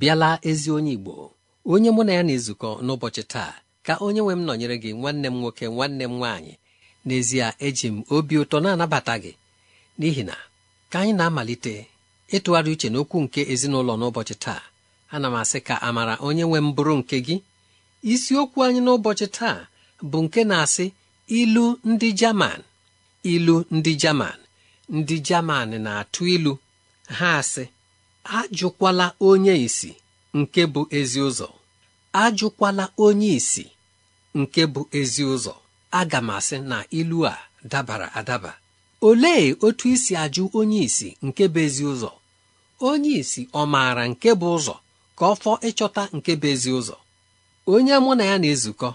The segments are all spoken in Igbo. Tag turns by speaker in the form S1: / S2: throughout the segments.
S1: bịala ezi onye Igbo onye mụ na ya na-ezukọ n'ụbọchị taa ka onye nwe m nọnyere gị nwanne m nwoke nwanne m nwaanyị n'ezie eji m obi ụtọ na-anabata gị n'ihi na ka anyị na-amalite ịtụgharị uche n'okwu nke ezinụlọ n'ụbọchị taa ana m asị ka amara onye nwe m bụrụ nke gị isiokwu anyị n'ụbọchị taa bụ nke na-asị ilu ndị Jaman ilu ndị Jaman ndị Jaman na-atụ ilu ha asị ajụkwala onye isi nke bụ ezi ụzọ ajụkwala onye isi nke bụ ezi ụzọ aga m asị na ilu a dabara adaba olee otu isi ajụ onye isi nke bụ ezi ụzọ onye isi ọ maara nke bụ ụzọ ka ọ fọ ịchọta nke bụ ezi ụzọ onye mụ na ya na-ezukọ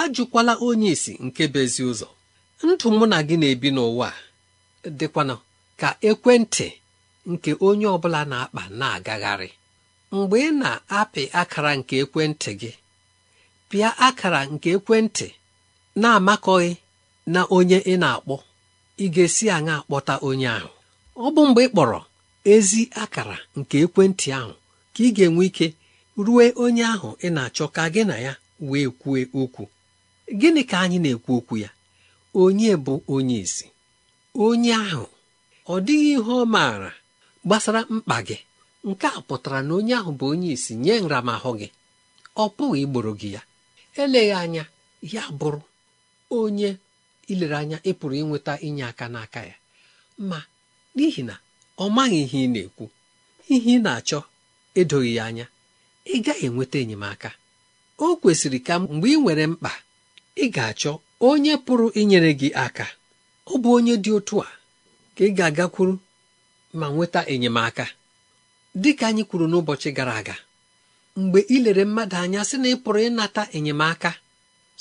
S1: ajụkwala onye isi nke bụ ezi ụzọ ndụ mụ na gị na-ebi n'ụwa dịkwanụ ka ekwentị nke onye ọ bụla na-akpa na-agagharị mgbe ị na-apị akara nke ekwentị gị pịa akara nke ekwentị na-amakọghị na onye ị na-akpọ ị ga-esi aṅa akpọta onye ahụ ọ bụ mgbe ị kpọrọ ezi akara nke ekwentị ahụ ka ị ga-enwe ike ruo onye ahụ ị na-achọ ka gị na ya wee kwue okwu gịnị ka anyị na-ekwu okwu ya onye bụ onye isi onye ahụ ọ dịghị ihe ọ maara gbasara mkpa gị nke a pụtara na onye ahụ bụ onye isi nye nramahụ gị ọ pụghị igboro gị ya eleghị anya ya bụrụ onye ilere anya ịpụrụ pụrụ ịnweta inye aka n'aka ya ma n'ihi na ọ maghị ihe ị na-ekwu ihe ị na-achọ edoghị ya anya ị gaghị enweta enyemaka o kwesịrị ka mgbe ị nwere mkpa ị ga-achọ onye pụrụ inyere gị aka ọ bụ onye dị otu a ka ị ga-agakwuru ma nweta enyemaka dịka anyị kwuru n'ụbọchị gara aga mgbe ilere mmadụ anya sị na ị pụrụ ịnata enyemaka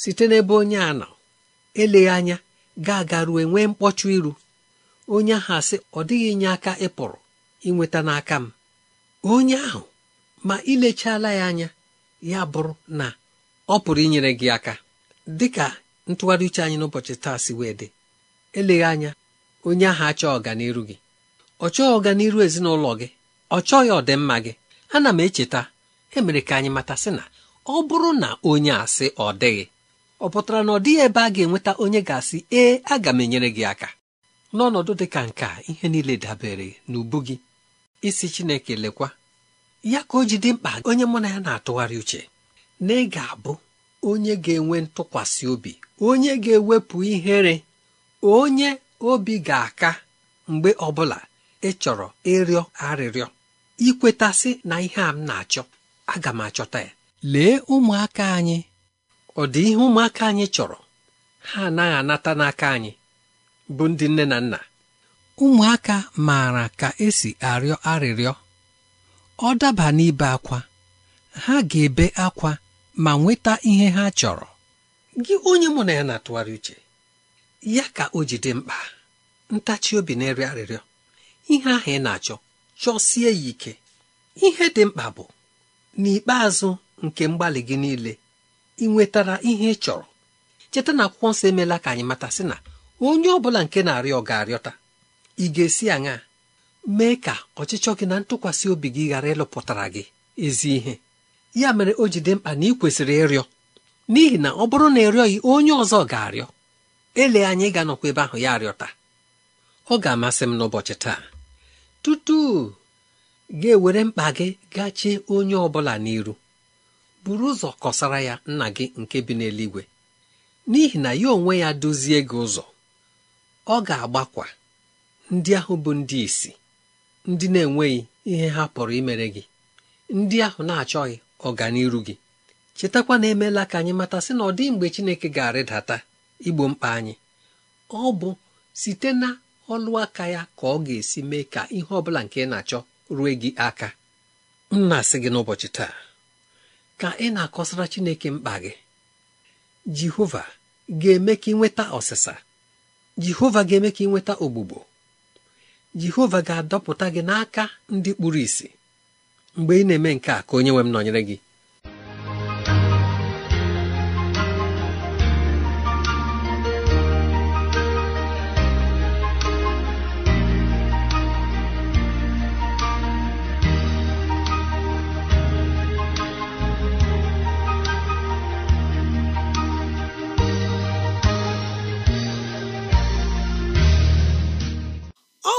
S1: site n'ebe onye a nọ eleghị anya ga-aga ruo nwee mkpọchụ iru onye ahụ asị ọ dịghị inye aka ịpụrụ inweta n'aka m onye ahụ ma ilechala ya anya ya bụrụ na ọ pụrụ inyere gị aka dịka ntụgharị uche anyị n'ụbọchị taa si wee dị eleghị anya onye ahụ achọ ọganiru gị ọ chọghị ọganiru ezinụlọ gị ọ chọghị ọdịmma gị ana m echeta emere ka anyị mata sị na ọ bụrụ na onye asị ọ dịghị ọ pụtara na ọ dịghị ebe a ga-enweta onye ga-asị ee aga m enyere gị aka n'ọnọdụ dị ka nke ihe niile dabere n'ubu gị isi Chineke lekwa ya ka o ji dị mkpa onye mụ na ya na-atụgharị uche na ị ga-abụ onye ga-enwe ntụkwasị obi onye ga-ewepụ ihere onye obi ga-aka mgbe ọbụla ị chọrọ ịrịọ arịrịọ ikwetasị na ihe a m na-achọ aga m achọta ya lee ụmụaka anyị ọ dị ihe ụmụaka anyị chọrọ ha anaghị anata n'aka anyị bụ ndị nne na nna ụmụaka maara ka esi arịọ arịrịọ ọ daba n'ibe akwa ha ga-ebe akwa ma nweta ihe ha chọrọ gị onye mụ na ya na-atụgharị uche ya ka o ji mkpa ntachi obi na-eri arịrịọ ihe ahụ ị na-achọ chọsie ya ike ihe dị mkpa bụ n'ikpeazụ nke mgbalị gị niile ị nwetara ihe ị chọrọ cheta na akwụkwọ nsọ emeela ka anyị mata sị na onye ọ bụla nke na-arịọ ga-arịọta ị ga-esi aṅa mee ka ọchịchọ gị na ntụkwasị obi gị ghara ịlụpụtara gị ezi ihe ya mere o ji dị mkpa na ị kwesịrị ịrịọ n'ihi na ọ bụrụ na ịrịọghị onye ọzọ ga-arịọ ele anyị ga-anọkwa ebe ahụ ya arịọta ọ ga-amasị m n'ụbọchị taa tutu ga-ewere mkpa gị gachie onye ọbụla n'iru buru ụzọ kọsara ya nna gị nke bi n'eluigwe n'ihi na ya onwe ya dozie gị ụzọ ọ ga-agbakwa ndị ahụ bụ ndị isi ndị na-enweghị ihe ha pụrụ imere gị ndị ahụ na-achọghị ọganiru gị chetakwa na emeela ka anyị mata sị na ọ dị mgbe Chineke ga-arịdata igbo mkpa anyị ọ bụ site na ọlụ aka ya ka ọ ga-esi mee ka ihe ọ bụla nke ị na-achọ rue gị aka m na-asị gị n'ụbọchị taa ka ị na-akọsara Chineke mkpa gị Jehova ga-eme ka ị nweta ọsịsa Jehova ga-eme ka ị nweta ogbugbo Jehova ga-adọpụta gị n'aka ndị kpuru ìsì mgbe ị na-eme nke a ka onye nwe m nọnyere gị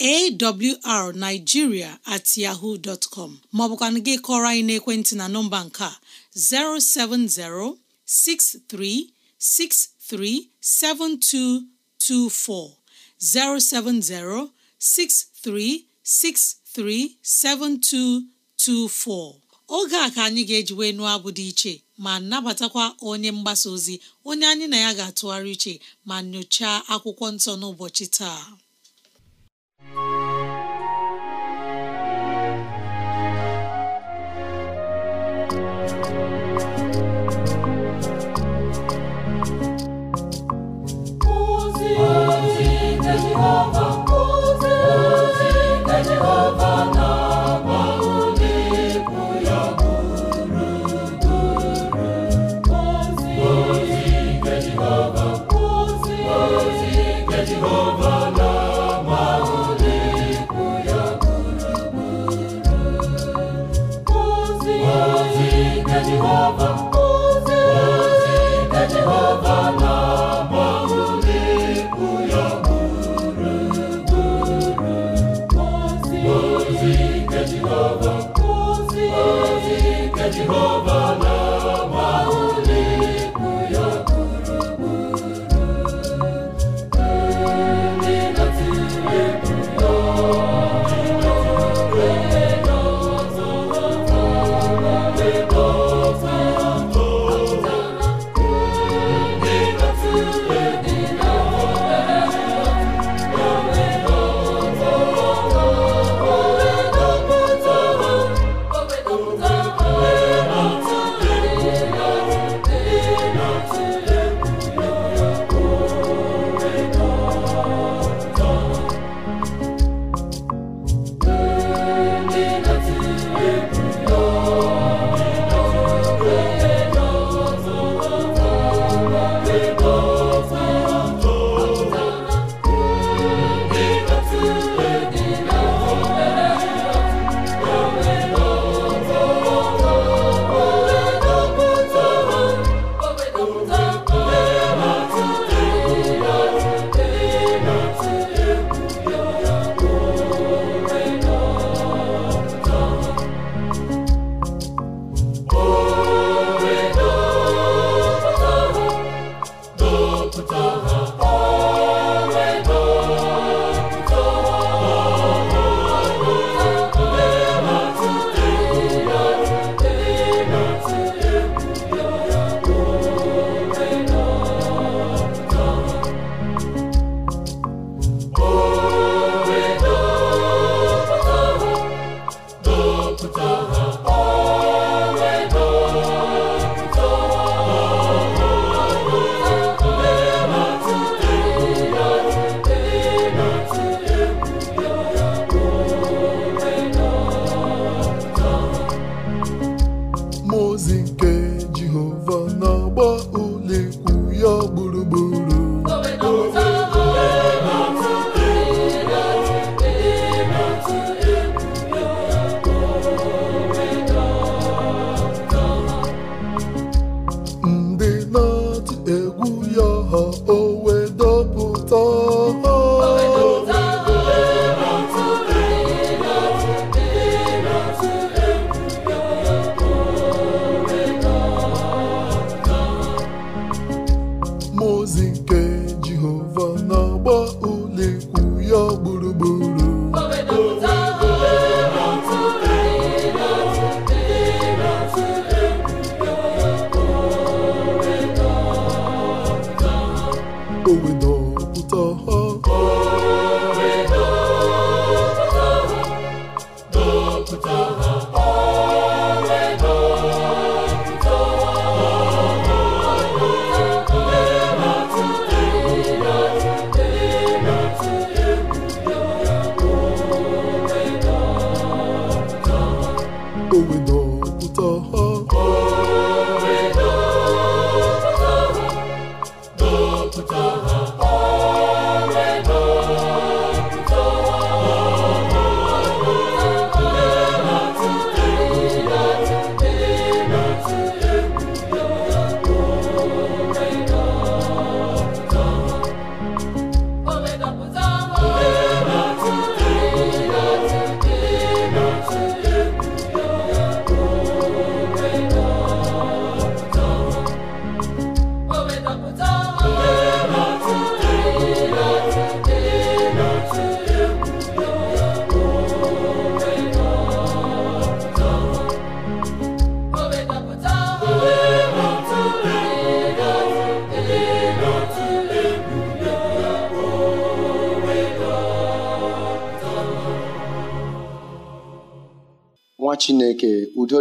S2: awrnigeria at yahoo dot com maọbụkwanụ gị kọrọ anyị n'ekwentị na nọmba nke a 07063637224 7224 oge a ka anyị ga-eji wee abụ dị iche ma nabatakwa onye mgbasa ozi onye anyị na ya ga-atụgharị iche ma nyochaa akwụkwọ nsọ n'ụbọchị taa
S3: Jehova ozi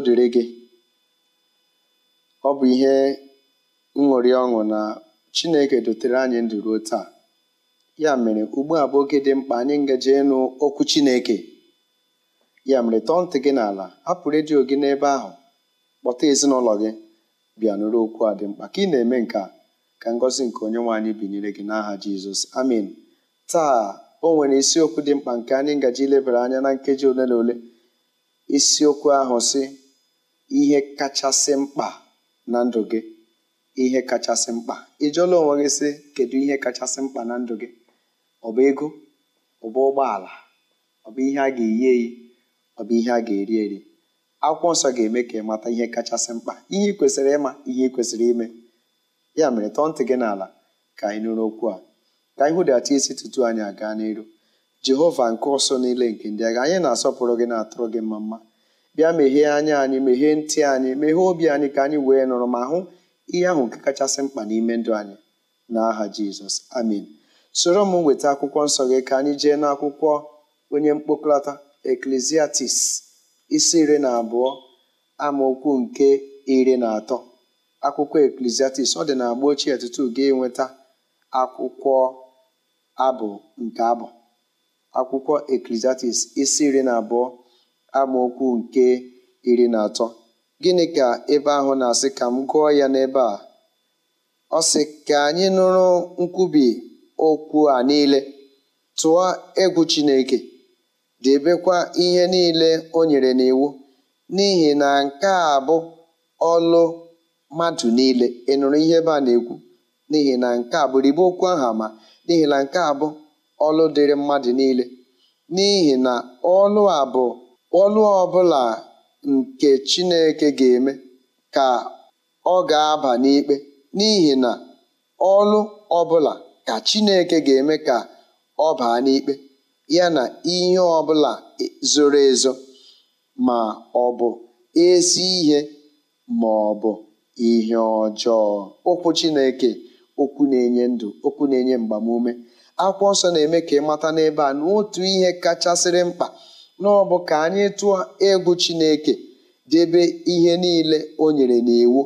S4: dịrị gị ọ bụ ihe nṅụrị ọṅụ na Chineke dotere anyị ndụ ruo taa ya mere ugbu a bụ oge dị mkpa anyị ngaji ịnụ okwu Chineke ya mere tọọ ntị gị n'ala hapụ redio gị n'ebe ahụ kpọta ezinụlọ gị bịa nụrụ okwu a dị mkpa ka ị na-eme nke a ka ngọzi nke onye nwaanyị binyere gị n'aha Jizọs amin taa o nwere isiokwu dị mkpa nke anyị ngaji ilebara anya na nkeji ole na ole isiokwu ahụ si ihe kachasị mkpa na ndụ gị ihe kachasị mkpa ị jụọla onwe gị sị kedu ihe kachasị mkpa na ndụ gị ọ bụ ego ọ bụ ụgbọala ọ bụ ihe a ga-eyi eyi ọ bụ ihe a ga-eri eri akwụkwọ nsọ ga-eme ka ị mata ihe kachasị mkpa ihe kwesịrị ịma ihe kwesịrị ime ya mere tọọ ntị gị n'ala ka anyị nụrụ okwu a ka anyị hụdata isi tutu anyị aga n'iru jehova nke ọsọ niile nke ndị agha anyị na-asọpụrụ gị na-atụrụ gị mma mma bịa meghee anya anyị meghee ntị anyị meghee obi anyị ka anyị wee nụrụ ma hụ ihe ahụ nke kachasị mkpa n'ime ndụ anyị n'aha jizọs amen soro m nweta akwụkwọ nsọ gị ka anyị jee n'akwụkwọ onye mkpokọta eklesiastis isi iri na abụọ amaokwu nke iri na atọ akwụkwọ eklesiastis ọ dị na agba ochie tutu ga-enweta akwụkwọ abụ nke abụ akwụkwọ eklesiastis isi iri na abụọ amaokwu nke iri na atọ gịnị ka ebe ahụ na-asị ka m gụọ ya n'ebe a ọ sị ka anyị nụrụ nkwubi okwu a niile tụọ egwu Chineke debekwa ihe niile o nyere n'iwu n'ihi na nke a bụ ọlụ mmadụ niile ị nụrụ ihe ebe a na-ekwu n'ihi na nke a bụ okwu ahụ ama n'ihi na nke a bụ ọlụ dịrị mmadụ niile n'ihi na ọlụ a bụ Ọlụ ọbụla nke Chineke ga-eme ka ọ ga-aba n'ikpe, n'ihi na ọlụ ọbụla ka Chineke ga-eme ka ọ baa n'ikpe, ya na ihe ọbụla zoro ezo ma ọ bụ ezi ihe ma ọ bụ ihe ọjọọ. Okwu Chineke okwu na-enye ndụ, okwu na-enye mgbamume. Akwụkwọ nsọ na-eme ka ị mata n'ebe a na otu ihe kachasịrị mkpa n'ọbụ ka anyị tụọ egwu Chineke debe ihe niile o nyere n'iwu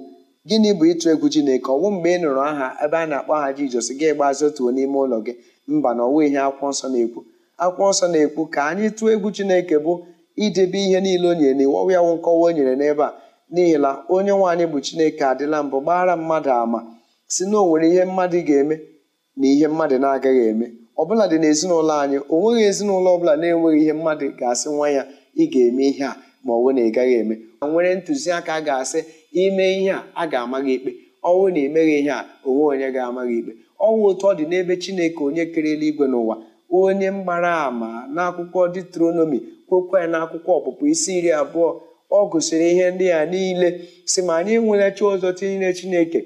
S4: gịnị bụ ịtụ egwu Chineke bụ mgbe ị nụrụ aha ebe a na-akpọ aha Jizọs gị gbazi otuo n'ime ụlọ gị mba na ọnwa ihe akwụkwọ nsọ na-ekwu akwụkwọ nsọ na-ekwu ka anyị tụọ egwu Chineke bụ idebe ihe niile o nyere n'iwu ọwụ ya wụ nkọwa o nyere n'ebe a n'ihi na onye nwaanyị bụ Chineke adịla mbụ gbara mmadụ ama si na ihe mmadụ ga-eme na ihe mmadụ na-agaghị eme ọbụladị n'ezinụlọ anyị o nweghị ezinụlọ ọbụla na-enweghị ihe mmadụ ga-asị nwa ya ị ga-eme ihe a ma ọ bụ na ị gaghị eme nwere ntụziaka ga-asị ime ihe a a ga-ama gị ikpe ọnwụ na emeghị ihe a onwe onye ga-ama gị ikpe ọnwụ otu ọ dị n'ebe chineke onye kere eluigwe n'ụwa onye mgbara ama n'akwụkwọ detronomi kwekwe ya n'akwụkwọ ọpụpụ isi iri abụọ ọ gụsịrị ihe ndị a niile si ma anyị enwere chi ọzọ tinyere chineke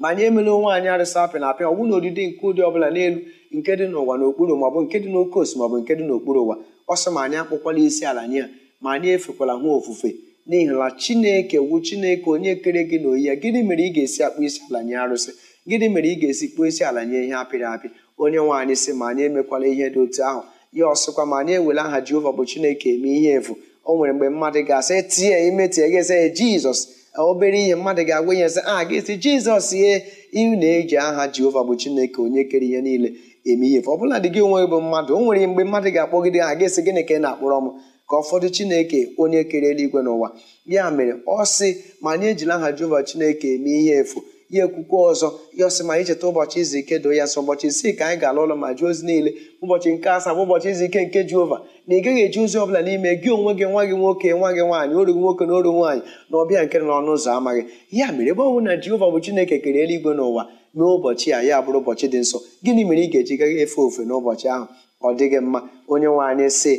S4: ma anyị emela onwe anyị apịa na apịa na odide nke ụdị ọbụla n'elu nke dị n'ụwa n'okpuru maọbụ nke dị n'oke osi maọbụ nke dị n'okpuru ụwa ọsọ ma anyị akpụkwala isi ala nye a ma anyị efekwala nwa ofufe n'ihi na chineke wu chineke onye kere gị na oyi ya gịnị mere ị ga-esi akpụ isi ala nye arụsị gịnị mere ị ga-esi kpụ isi ala nye ihe apịrị apị onye nwaanyị si sị ma anyị emekwala ihe dị otu ahụ ya ọsịkwa ma anyị ewela aha jehova bụ chineke eme ihe efu o nwere mgbe mmadụ ga-asị tie ime gị esi jizọs e, obere ihe mmadụ ga-agwa ah, ihe sị a jizọs ye ị na-eji aha jehova bụ chineke onye kere ihe niile eme ihe ọ bụladị gị onwe bụ mmadụ o nwere mgbe mmadụ ga-akpọgide ha ga-esi gịnị ka ị na-akpọrọ m ka ụfọdụ chineke onye kere eluigwe n'ụwa ya mere ọ sị ma anyị ejila aha jehova chineke eme ihe efu ya ekwukwe ọzọ ya ọsị ma anyị cheta ụbọchị izu ike doo ya sọ ụbọchị isii ka anyị ga alụ ụlọ ma jụọ ozi niile ụbọchị nke asaa bụ ụbọchị izu ike nke jehova na ị gaghị eji ozi ọbụla n'ime gị onwe gị nwa gị nwoke nwa gị nwaanyị oru nwoke na oru nwaanyị na ọbịa nke n'ọnụ ụzọ amaghị ya mere ebe ọ na jeova bụ chineke kere eluigwe n'ụwa n'ụbọchị a ya bụrụ ụbọchị dị nsọ gịnị mere ị ga-eji gaghị efe ofe n'ụbọchị ahụ ọ dịghị mma onye nwe anyị sị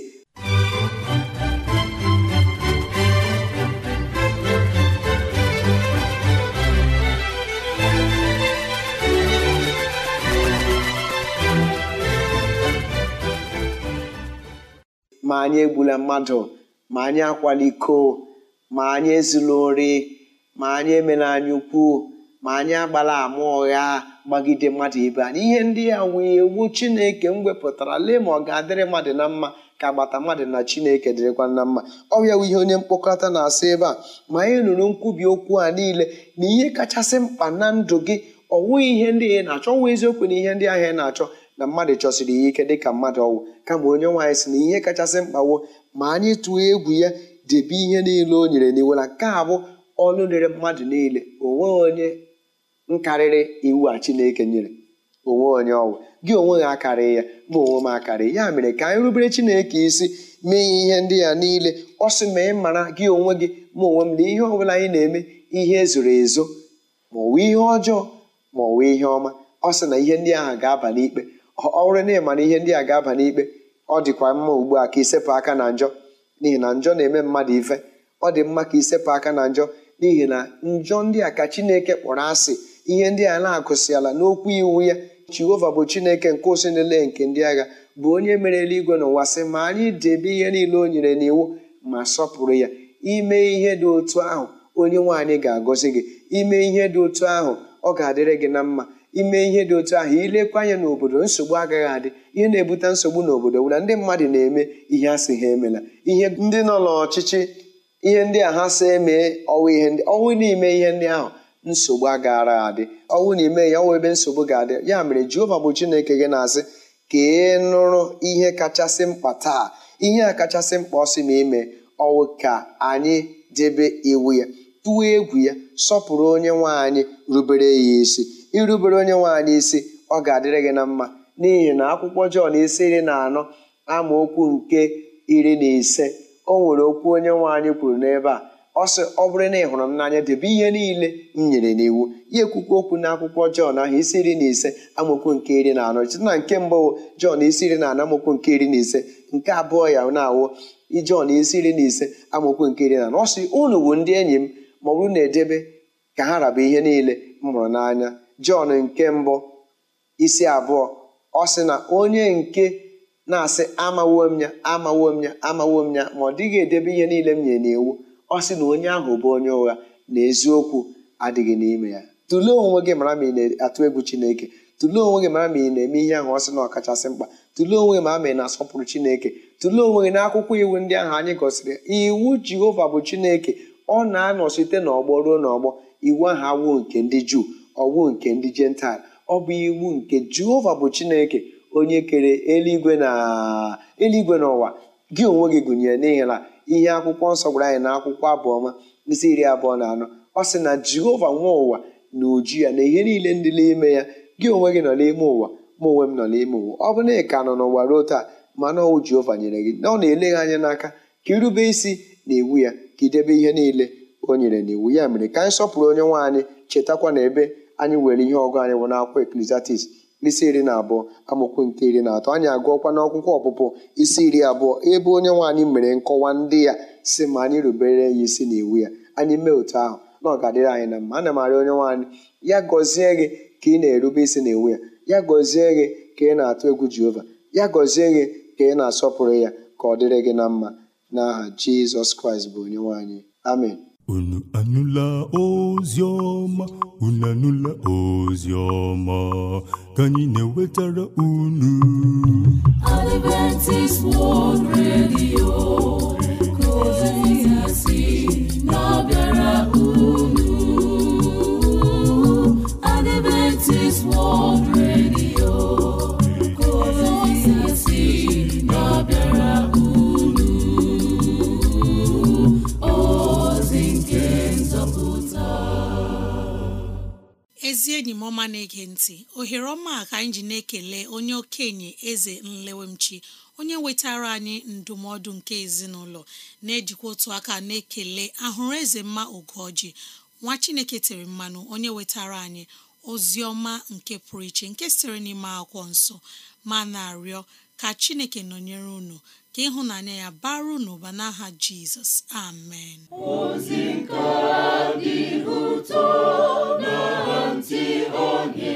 S4: ma anyị egbula mmadụ ma anyị akwala ma anyị ezula ori ma anyị emela anyị ukwu ma anyị agbala ama ụgha gbagide mmadụ ibe anyị ihe ndị ya wee iwu chineke m wepụtara lee ma ọ ga-adịrị mmadụ na mma ka agbata mmadụ na chineke dịrịkwa na mma ọ bịawa ihe onye mkpokọta na-asị ebe a ma anyị nụrụ nkwubi okwu a niile na ihe kachasị mkpa na ndụ gị ọ nwụghị ihe ndị ị na-achọ ọnwa eziokwu na ihe ndị ahịa ị na-achọ na mmadụ chọsiri ya ike dịka mmadụ ọnwụ kama onye nwaanyị si na ihe kachasị mkpawo ma anyị tụọ egwu ya debe ihe niile o nyere na nke a bụ ọnụ rere mmadụ niile o onye nkarịrị iwu a chineke nyere onwe onye ọwụ gị onwe gị akarị ya bụ onwe m akarị ya mere ka anyị rubere chineke isi mee ihe ndị ya niile ọ sị ma ị mara gị onwe gị ma onwe m na ihe ọ bụla anyị na-eme ihe ezoro ezo ma ọ wụ ihe ọjọọ ma ọ wụ ihe ọma ọ sị na ihe ndị ahụ ga-aba n'ikpe ọ bụrụ na ihe ndị a ga-aba n'ikpe ọ dịkwa mma ugbu a ka isepụ aka na njọ n'ihi na njọ na-eme mmadụ ife ọ dị mma ka isepụ aka na njọ n'ihi na njọ ndị a ka chineke kpọrọ asị ihe ndị a na-akụsịala n'okwu iwu ya jehova bụ chineke nke ụsị niile nke ndị agha bụ onye mere eluigwe na ụwa sị ma anyị debe ihe niile o nyere n'iwu ma sọpụrụ ya ime ihe dị otu ahụ onye nwaanyị ga-agọzi gị ime ihe dị otu ahụ ọ ga-adịrị gị na mma ime ihe dị otu ahụ ilekwa anya n'obodo nsogbu agaghị adị ihe na-ebute nsogbu n'obodo bụ ndị mmadụ na-eme ihe a sị ha emela ihe ndị nọ n'ọchịchị ihe ndị a ha sị emee ọnwụ ihe ọnwụ n'ime ihe ndị ahụ nsogbu agaara adị ọwụ na ime ya ọwụ ebe nsogbu ga-adị ya mere jehova bụ chineke gị na-asị ka ị nụrụ ihe kachasị mkpa taa ihe a kachasị mkpa ọ sị ma ime ọwụ ka anyị debe iwu ya tụọ egwu ya sọpụrụ onye nwaanyị rubere ya isi irubere onye nwaanyị isi ọ ga-adịrị gị na mma n'ihi na akwụkwọ jọn isi iri na anọ amaokwu nke iri na ise o nwere okwu onye nwaanyị kwuru n'ebe a ọ ọ bụrụ na ị hụrụ m n'anya debe ihe niile m nyere n'iwu Ihe ekwukwu okwu na akwụkwọ Jọn ahụ isi iri na ise amaokwu nke iri na anọ site na nke mbụ Jọn isi iri na anọ amaokwu nke iri na ise nke abụọ ya na-awụ Jọn isi iri na ise amaokwu nke iri na anọ ọ sị unu bụ ndị enyi m ma ọ na-edebe ka ha raba ihe niile m hụrụ n'anya Jọn nke mbụ isi abụọ ọ sị na onye nke na-asị amawom ya amawom ya amawo m ya ma ọ dịghị edebe ihe niile m nyere n'iwu ọ sị na onye ahụ bụ onye ụgha na eziokwu adịghị n'ime ya tụlee onwe gị mara ma ị na-atụ egwu chineke tụlee onwe gị mara ma ị na-eme ihe ahụ ọ sị na ọkachasị mkpa tụlee onwe gị mara ma ị na-asọpụrụ chineke tụlee onwe gị n'akwụkwọ iwu ndị ahụ anyị gosiri iwu jehova bụ chineke ọ na-anọ site n'ọgbọ ruo n'ọgbọ iwu ahụ awụ nke ndị juu ọwụ nke ndị jental ọ bụ iwu nke jehova bụ chineke onye kere eluigwe na eluigwe n'ụwa gị onwe gị gụnyere n'ihi na ihe akwụkwọ nsọ gwara anyị na akwụkwọ abụọma isi iri abụọ na anọ ọ sị na jehova nwa ụwa na uju ya na ihe niile ndị n'ime ya gị onwe gị nọ n'ime ụwa ma onwe m nọ n'ime ụwa ọ bụ na ị ka nọ n'ụwa ruo taa mana ọwụ jehova nyere gị na ọ na-ele gị anya n'aka ka irube isi na iwu ya ka idebe ihe niile o nyere na iwu ya mere ka anyị sọpụrụ onye nwaanyị anyị chetakwa na ebe anyị nwere ihe ọgụ anyị wụ n'akwụkwọ eklesiastis isi iri na abụọ amụkwu nke iri na atọ anyị agụọkwa n'akwụkwọ ọpụpụ isi iri abụọ ebe onye nwaanyị mere nkọwa ndị ya si ma anyị rubere ya isi na iwu ya anyị mee otu ahụ na ọ ga-adịrị anyị na mma ana m arị onye nwaanyị ya gọzie gị ka ị na-erube isi na iwu ya ya gọzie gị ka ị na-atụ egwu jehova ya gọzie gị ka ị na-asọpụrụ ya ka ọ dịrị gị na mma n'aha jizọs kraịst bụ onye nwaanyị amen unu anụla ozi ọma unu anụla ozi ọma ka anyị na-ewetara unu
S3: Adventist World Radio ka
S2: ezi enyi m ọma na-ege ntị ohere ọma ka anyị ji na-ekele onye okenye eze nlewemchi onye wetara anyị ndụmọdụ nke ezinụlọ na-ejikwa otu aka na-ekele ahụrụ eze mma ogoji nwa chineke tere mmanụ onye wetara anyị ozi ọma nke pụrụ iche nke sitere n'ime akwụkwọ nsọ ma na-arịọ ka chineke nọnyere unu ka ịhụnanya ya baru n'ụba n'aha jizọs amen
S3: ntị onye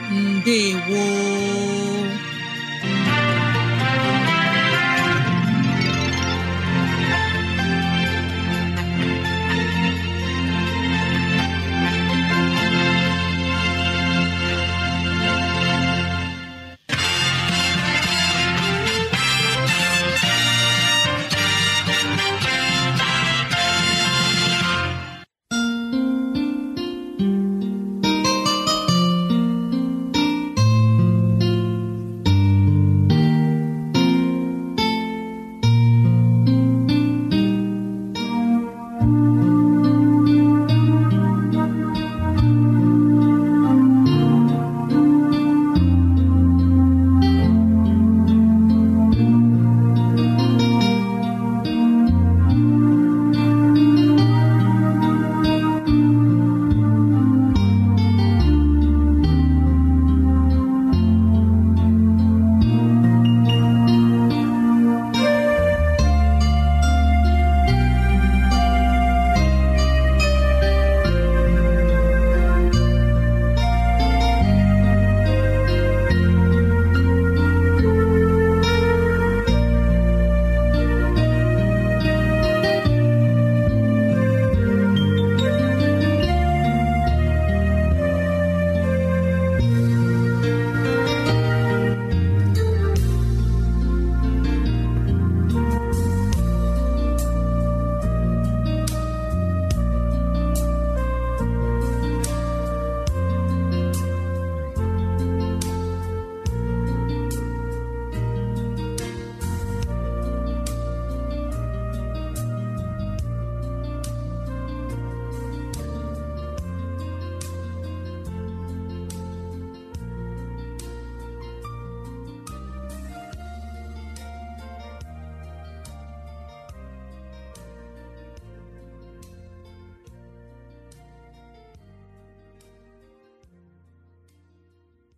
S2: ndewo